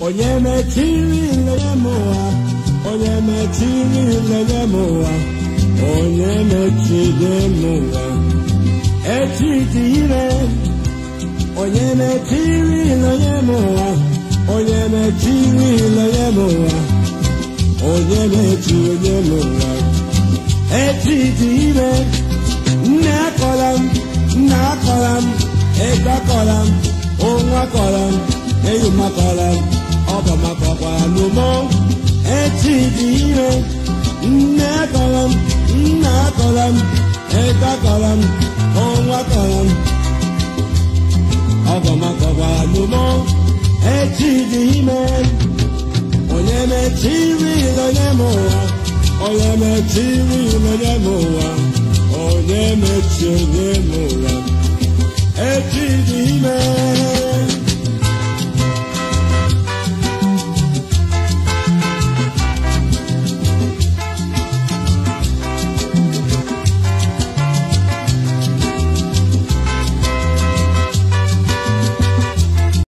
onye mechiri ilenye m ụwa onye mechiri ilenye m ụwa onye mechide m echi dị ire onye mechiri ilenye m ụwa onye mechiri ilenye m ụwa onye mechiri m ụwa echi dị ire nne akọla m nna akọla m ego akọla m onwe akọla m eyi m akọla m ọbọ maka ọkwa alụmọ echi dị ire nne akọrọ m nna akọrọ m eke akọrọ m ọnwa akọrọ m ọbọ maka ọkwa echi dị ime onye mechiri onye m ụwa onye mechiri onye m ụwa onye mechiri onye m ụwa